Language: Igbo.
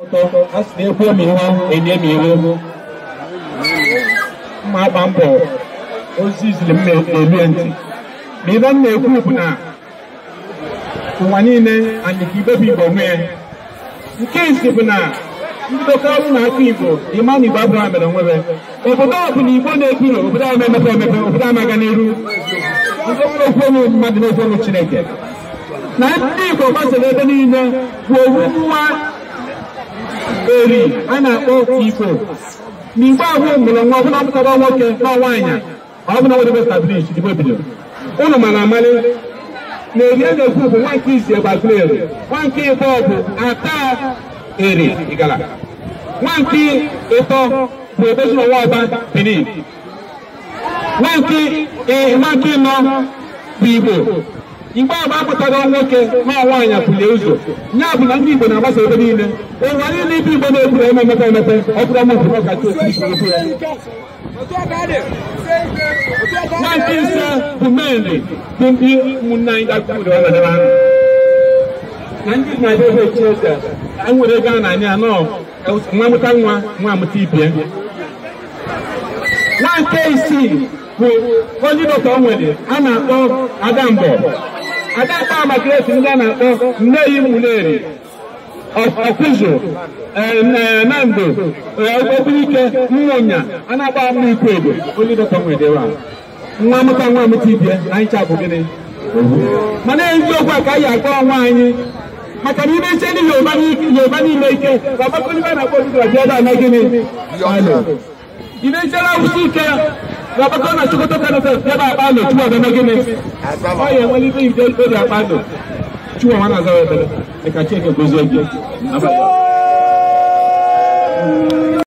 sị na-ekwu omiiwe mma agba mbọ ozi iziri m na ma na-ekwu bụ na ụwa niile anyị ka ibe igbo nke bụ na ndị na-akụ igbo ịma mere obodo igbo na-ebiro obodo emepe emepe obodo ndị nwere chineke na ndị igbo ebe niile kwuo nwa eri a na-akpọ ifo n'igbe ahụ mụrụ nwa ọbụla mkpọrọ nwoke na nwaanyị ọbụla nwere establish igbo bidoro ụnụ mana amalị na eri a na-ekwu bụ nwa nke izi gbaziri eri nwa nke ịbọ bụ ata eri igala nwa nke ịtọ bụ ebezina nwa ọba benin nwa nke ịnọ bụ igbo mgbe agba apụtago nwoke ma nwaanyị apụlie ụzọ ya bụ na ndị Igbo na-agbasa ebe niile ụwa niile ibe Igbo na-eburu eme emepe emepe ọ bụrụ ama ọbụrụ ọkacha otu ya nwaanyị ise bụ meli bụ ndị ụmụnne anyị dakpụrụ na ndị na-abịa ebe echieze enwere ego a na-anya anọ nwa mụta nwa nwa amụta ibie nwa nke isii bụ onye dọkịta o nwere a na-akpọ adambo adaka amakreti ndị a na-akpọ nneyi muleri ọkụzụ e, e, nando okpurike e, nwụnya a na-agba mma ikwu ebe olidọta nwedewa nwa mụta nwa mụta ibie na ncha bụ gịnị mana eziokwu a ka anyị akpọ ọnwa anyị maka na ime ndị yoruba niile ike ka ọgbakọ ndị na-akpọ odibo dị ebe a na gịnị ime ichere awụsa ike Baba Gọ́nà Sokoto Kẹ́nẹ́fẹ̀ yaba Akpano tuwa bẹ́ẹ̀ gini. Ọyẹ wọlé bí ìdè ìdè Akpano tuwa wọn azọ yẹ bẹ́ẹ̀ ẹ̀ka tí ẹ̀kẹ́ gbèsè ẹ̀jẹ̀.